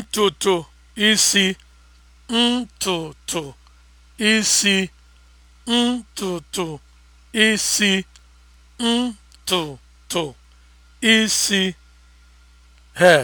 ntutu isi ntutu isi ntutu isi ntutu isi he.